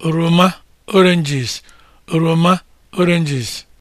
oroma oranges oroma oranges